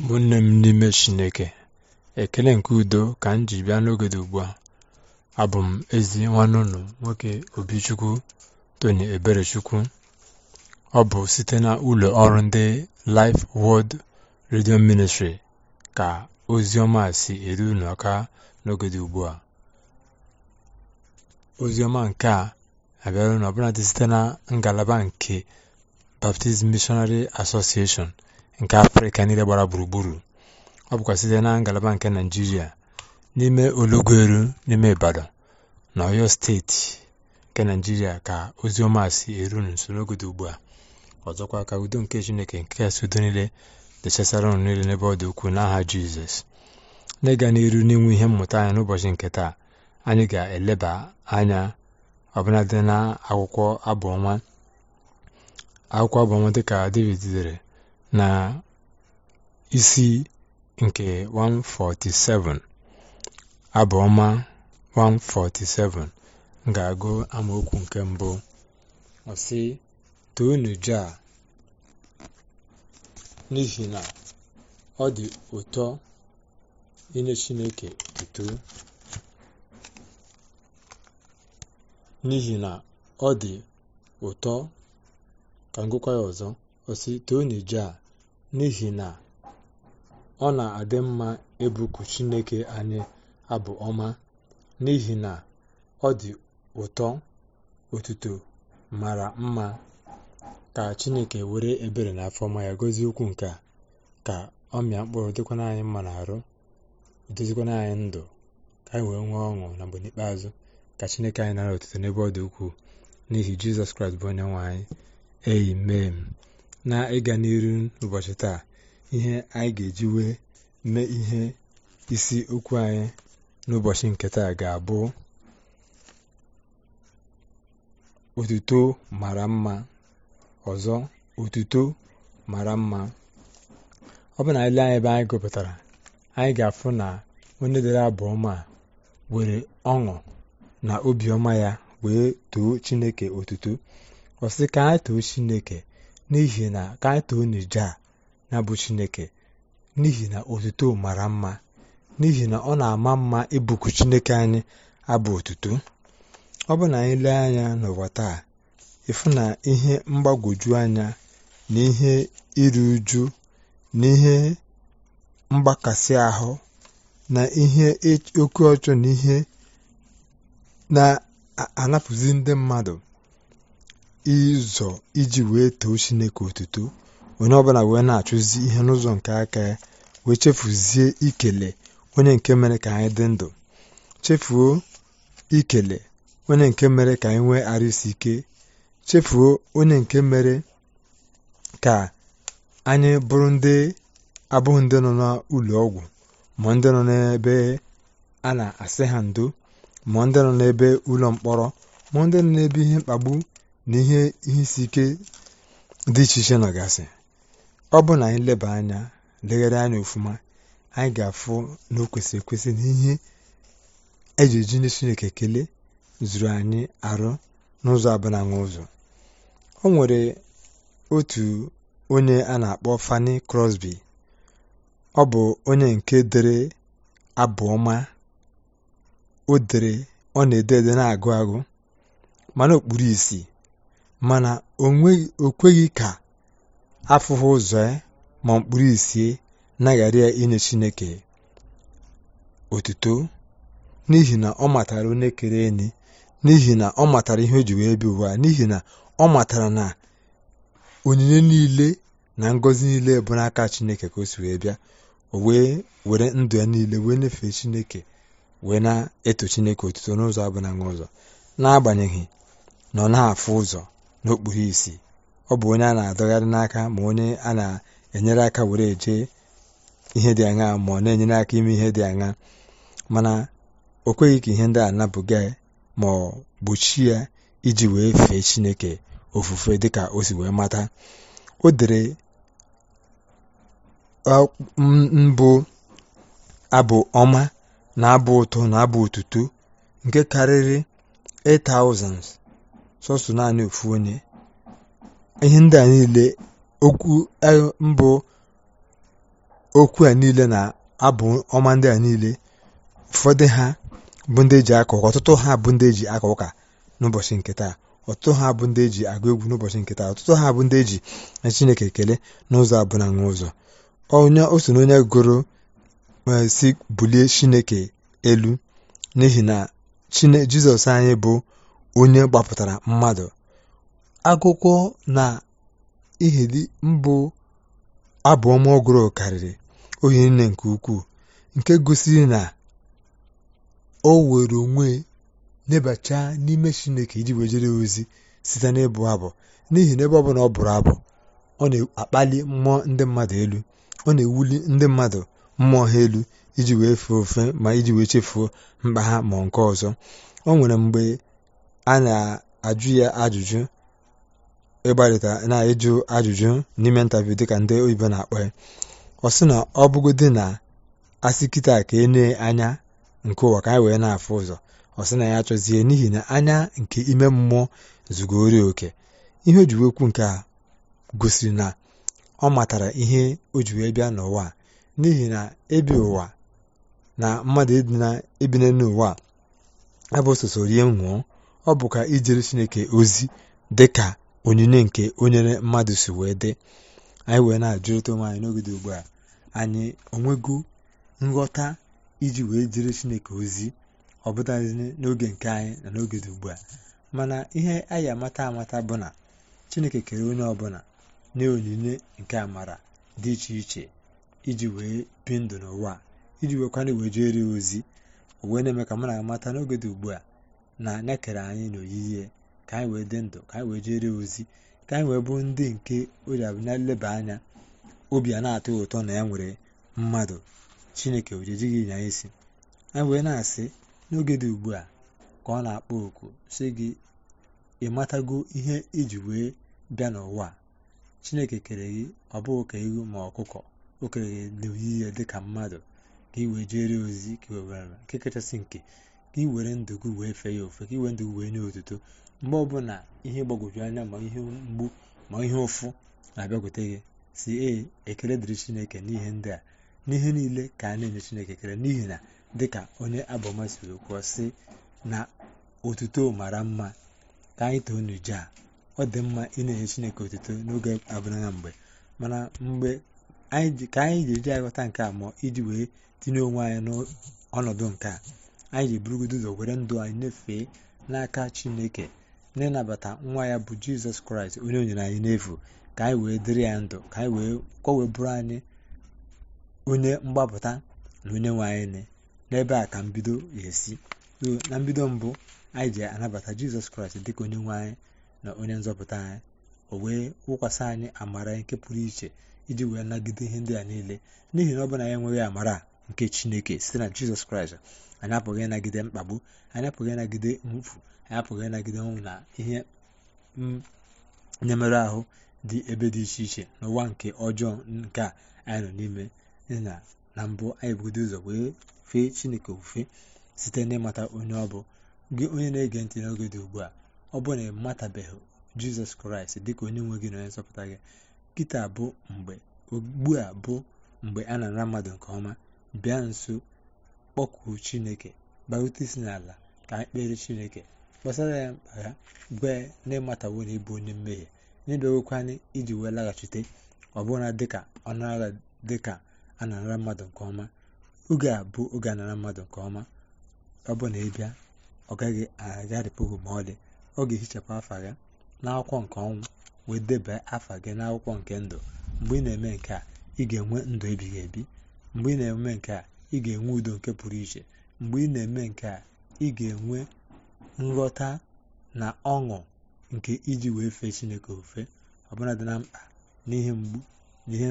ụmụnne m n'ime chineke ekele nke udo ka m ji bịa n'ogede ugbu a abụ m ezi nwanne unu nwoke obichukwu tony eberechukwu ọ bụ site na ụlọ ọrụ ndị Life world Radio Ministry ka ozi ọma si eru unu aka ugbu a ozi ọma nke a abịara ọbụladị site na ngalaba nke Baptist Missionary Association. nke afrịka niile gbara gburugburu ọ bụkwa site na ngalaba nke naijiria n'ime olugweru n'ime ibadan na oyo steeti nke naijiria ka ozi ọma si eru n'usoro oge dị ugbu a ọzọkwa ka udo nke chineke nke kasị udo niile dechasara ụnụ niile n'ebe ọ dị ukwuu n'aha jizọs n'ịga n'iru n'inwe ihe mmụta anya n'ụbọchị nke taa anyị ga-eleba anya ọbụladị na akwụkwọ abụ akwụkwọ abụ dị dịka david dere na isi nke 147 abụọma 147 ga-agụ amaokwu nke mbụ ọsị toonu n'ihi na ọ dị ụtọ inye Chineke n'ihi na ọ dị ụtọ ka m ya ọzọ ọsị toonu Jah n'ihi na ọ na-adị mma ebuku Chineke anyị abụ ọma n'ihi na ọ dị ụtọ otuto mara mma ka Chineke were ebere na ọma ya gozie ukwu nke ka ọ mịa mkpụrụ dịkwana anyị mma na arụ dozikwana anyị ndụ ka anyị wee nwee ọṅụ na mgbe n'ikpeazụ ka Chineke anyị nara otuto n'ebe ọ dị ukwuu n'ihi Jizọs Kraịst bụ onye nwe anyị eyi mee m. na ịga n'iru n'ụbọchị taa ihe anyị ga-eji wee mee ihe isi okwu anyị n'ụbọchị nke taa ga-abụ otuto mara mma ọzọ otuto mara mma ọ bụ na ile anyị ebe anyị gụpụtara anyị ga-afụ na onye dere abụọma were ọṅụ na obiọma ya wee too chineke otuto ọ ka anyị too chineke n'ihi na ka anyị na bụ chineke n'ihi na otuto mara mma n'ihi na ọ na-ama mma ịbụku chineke anyị abụ otuto ọ bụ na anyị lee anya n'ụwa taa ịfụ na ihe mgbagwoju anya na ihe iru uju na ihe mgbakasị ahụ na ihe e-, oke ọchọ na ihe na-anapụzi ndị mmadụ ịzọ iji wee too chineke otuto onye ọbụla wee na-achụzi ihe n'ụzọ nke aka ya wee chefuzie ikele onye nke mere ka anyị dị ndụ chefuo ikele onye nke mere ka anyị nwee arụsi ike chefuo onye nke mere ka anyị bụrụ ndị abụghị ndị nọ n'ụlọ ọgwụ ma ndị nọ n'ebe a na-asị ha ndo ma ndị nọ n'ebe ụlọ mkpọrọ ma ndị nọ n'ebe ihe mkpagbu na ihe isi ike dị iche iche nọgasị ọ bụ na anyị leba anya legharị anya ofuma anyị ga-afụ na o kwesịrị ekwesị na ihe eji eji ndị chineke kelee zuru anyị arụ n'ụzọ abụlanwa ụzọ o nwere otu onye a na-akpọ fani Crosby ọ bụ onye nke dere abụ ọma o dere ọ na-ede ede na-agụ agụ mana okpuru isi mana o kweghị ka afụghị ụzọ ya eh, ma mkpụrụ isi naghara ya inye chineke otuto n'ihi na ọ matara onye kere enyi n'ihi na ọ matara ihe o ji wee bi ụwa n'ihi na ọ matara na onyinye niile na ngọzi niile bụ n'aka chineke ka o si wee bịa o wee were ndụ ya niile wee nyefee chineke wee na-eto chineke otuto n'ụzọ abụ na ụzọ n'agbanyeghị na ọ na-afụ ụzọ n'okpuru isi ọ bụ onye a na-adọgharị n'aka ma onye a na-enyere aka were eje ihe dị aṅa ma ọ na-enyere aka ime ihe dị aṅa mana o kweghị ka ihe ndị a napụga ma ọ gbochie ya iji wee fee chineke ofufe dịka o si wee mata o dere mbụ abụ ọma na abụ ụtọ na abụ otuto nke karịrị 8,000 sọsọ naanị ofu onye ihe ndị a niile okwu e, mbụ okwu a niile na abụ ọma ndị a niile ụfọdụ ha bụ ndị eji akọ ụka ọtụtụ ha bụ ndị eji akọ ụka n'ụbọchị nke taa ọtụtụ ha bụ ndị eji agụ egwu n'ụbọchị nke taa ọtụtụ ha bụ ndị eji na chineke ekele n'ụzọ abụna nwa ụzọ onye oso na onye gụrụ e, si bulie chineke elu n'ihi na jizọs anyị bụ onye gbapụtara mmadụ akụkọ na ihedi mbụ abụọ ọ gụrụ karịrị ohi nne nke ukwuu nke gosiri na o were onwe nebacha n'ime chineke iji wejere ozi site n'ịbụ abụ n'ihi na ebe ọ ọ bụrụ abụ ọ na-akpali mmụọ ndị mmadụ elu ọ na-ewuli ndị mmadụ mmụọ ha elu iji wee fee ofe ma iji wee chefuo mkpa ha ma nke ọzọ ọ nwere mgbe a na-ajụ ya ajụjụ ịgbarịta na-ajụ ajụjụ n'ime ntaviu dịka ndị oyibo na-akpọ ya ọ sị na ọ bụgodị na asị kịta ka e nee anya nke ụwa ka anyị wee na-afụ ụzọ ọ sị na ya achọzie n'ihi na anya nke ime mmụọ zugoro oke ihe ojiwe ji nke a gosiri na ọ matara ihe o a bịa n'ụwa n'ihi na ebi ụwa na mmadụ ịdị na ebine n'ụwa abụ soso rie nwụọ ọ bụkwa ijere chineke ozi dị ka onyinye nke onyere mmadụ si wee dị anyị wee na-ajụrịta onwe anyị n'oge dị ugbu a anyị onwego nghọta iji wee jere chineke ozi ọ bụtaghị n'oge nke anyị na n'oge dị ugbu a mana ihe anyị amata amata bụ na chineke kere onye ọbụla na onyinye nke amara dị iche iche iji wee bi ndụ n'ụwa iji weekwana wee jere ozi wee na-eme ka m na-amata n'oge dị ugbu a na anya kere anyị n'oyiyi ka anyị wee dị ndụ ka anyị wee jere ozi ka anyị wee bụ ndị nke oji na nleba anya obi a na-atọ ụtọ na ya nwere mmadụ chineke ojejighị nya isi anyị wee na-asị n'oge dị ugbu a ka ọ na-akpọ oku si gị ị matago ihe iji wee bịa n'ụwa chineke kere gị ọ bụghị ka ewu ma ọkụkọ o kere gị n'oyiyi dị ka mmadụ ka ị wee jere ozi ka kachasị nke ka ị were ndụ gị wee fee ya ofe ka ị were ndụ gị wee nye otuto mgbe ọbụla ihe gbagwoju anya ma ihe mgbu ma ihe ụfụ na-abịakwute gị si e ekele dịrị chineke n'ihe ndị a n'ihe niile ka a na-enye chineke ekele n'ihi na dịka onye abọma siri kwuo sị na otuto mara mma ka anyị too n'uju a ọ dị mma ị na-enye chineke otuto n'oge abụrụna mgbe mana mgbe ka anyị ji eji aghọta nke a ma iji wee tinye onwe anyị n'ọnọdụ nke a anyị ga-eburugodo ụzọ were ndụ anyị nyefee n'aka chineke n'ịnabata nwa ya bụ jizọs kraịst onye onyere anyị n'efu ka anyị wee dịrị ya ndụ ka anyị wee kọwee bụrụ anyị onye mgbapụta na onye nwe anyị n'ebe a ka mbido ga-esi na mbido mbụ anyị ji anabata jizọs kraịst dịka onye nwe anyị na onye nzọpụta anyị o wee wụkwasị anyị amara nke pụrụ iche iji wee nagide ihe ndị a niile n'ihi na ọ bụ na ya enweghị amara nke chineke site na jizọs kraịst anyị apụghị ịnagide mkpagbu anyị apụghị ịnagide mwụfu anyị apụghị ịnagide ọnwụ na ihe mm, nyemerụ ahụ dị ebe dị iche iche n'ụwa nke ọjọọ nke a anyị nọ n'ime na na mbụ anyị bugodo ụzọ wee fee chineke ofufe site n'ịmata onye ọ bụ gị onye na-ege ntị n'oge dị ugbu a ọ bụrụ na ị matabeghị jizọs kraịst dịka onye nwe gị na onye nsọpụta gị kịta bụ mgbe ugbu a bụ mgbe a na-ara mmadụ nke ọma bịa nso kpọkuo chineke barute isi n'ala ka anyị kpere chineke kpọsara ya mkpa ya gwe na ịmatawo na ịbụ onye mmehie na iji wee laghachite ọ bụla dịka ọnụagha dịka a na-anara mmadụ nke ọma oge a bụ oge anara mmadụ nke ọma ọ bụ na ị ọ gaghị agharịpụ ma ọ dị ọ ga-ehichapụ afa gị n'akwụkwọ nke ọnwụ wee deba afa gị n'akwụkwọ nke ndụ mgbe ị na-eme nke a ị ga-enwe ndụ ebighị ebi mgbe ị na-eme nke a ị ga-enwe udo nke pụrụ iche mgbe ị na-eme nke a ị ga-enwe nghọta na ọṅụ nke iji wee fee chineke ofe ọbụla dị na mkpa na ihe mgbu na ihe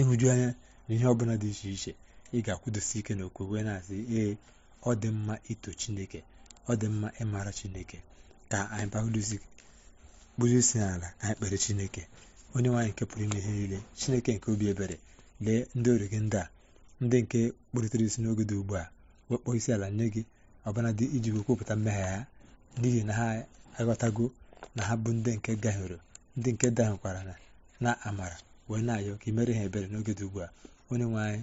ịhụju anya na ihe ọbụla dị iche iche ị ga-akwụdosi ike na okwe wee na-asị ee ọ dị mma ito chineke ọ dị mma ịmara chineke ka anyị baụdozi kpụrụ isi n'ala anyị kpere chineke onye nwaanyị nke pụrụ ime ihe niile chineke nke obi ebere lee ndị ọrụ gị ndị a ndị nke kpụrịtara isi n'oge dị ugbu a wekpọọ isi ala nye gị ọbụnadị iji wekwupụta mmehie ha n'ihi na ha aghọtago na ha bụ ndị nke gahiere ndị nke dahụkwara na na amara wee na-ayọ ka imere ha ebere n'oge dị ugbu a onye nwe anyị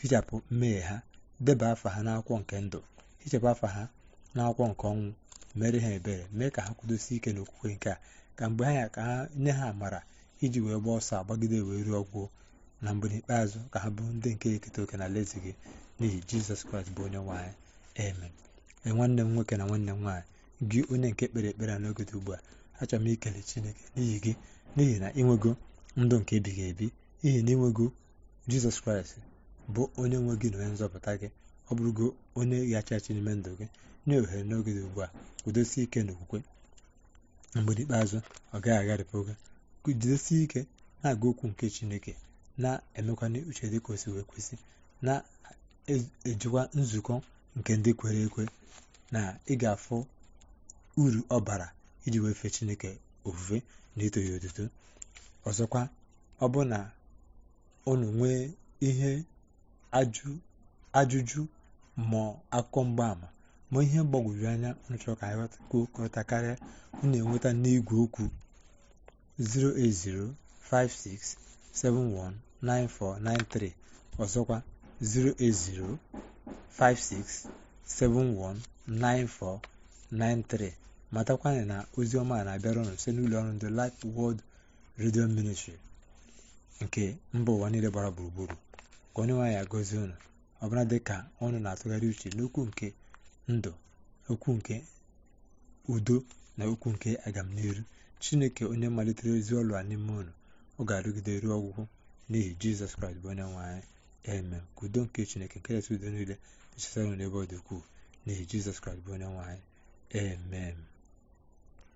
hichapụ mmehie ha deba afa ha n'akwụkwọ nke ndụ hichapụ afa ha n'akwụkwọ nke ọnwụ mere ha ebere mee ka ha kwudosie ike n'okwukwe nke a ka mgbe ha ya ka ha nye ha amara iji wee gbaa ọsọ agbagide wee ruo ọgwụ na mgbe n'ikpeazụ ka ha bụrụ ndị nke eketa oke na alaeze gị n'ihi jizọs kraịst bụ onye nwaanyị amen nwanne m nwoke na nwanne m nwaanyị gị onye nke kpere ekpere a n'oge ugbu a achọrọ m ikele chineke n'ihi gị n'ihi na ịnwego ndụ nke ebighị ebi ihi na ịnwego jizọs kraịst bụ onye nwe gị na onye nzọpụta gị ọ bụrụgo onye ghachi n'ime ndụ gị nye ohere n'oge dị ugbu a kwudosie ike okwukwe mgbe n'ikpeazụ ọ gaghị agharịpụ gị jidesie ike na aga okwu nke chineke na-emekwana uche dị ka kwesị na-ejikwa e-, nzukọ nke ndị kwere ekwe na ị ga uru ọbara iji wee fee chineke ofufe na ito ya otuto ọzọkwa ọ bụ na unu nwee ihe ajụjụ ma akụkọ mgbaama ma ihe mgbagwoju anya unu chọrọ ka anyị karịa enweta n'igwe okwu 0805671 9493 ọzọkwa 08056719493 matakwana na oziọma a na-abịara ụnụ site n'ụlọ ọrụ ndị Light Word Radio Ministry nke mba ụwa niile gbara gburugburu ka onye nwaanyị agọzie ụnụ ọbụla dị ka ọnụ na-atụgharị uche n'okwu nke ndụ okwu nke udo na okwu nke agamniru chineke onye malitere ezi ọlụ a n'ime ụnụ ọ ga-arụgide ruo ọgwụgwụ n'ihi jizọs kraịst bụ onye nwe anyị eme ka udo nke chineke nke nkekesi udo niile nchesara n'ebe ọ dị ukwuu n'ihi jizọs kraịst bụ onye nwe anyị amen